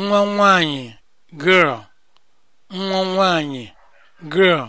nwa nwanyị girl nwa nwanyị girl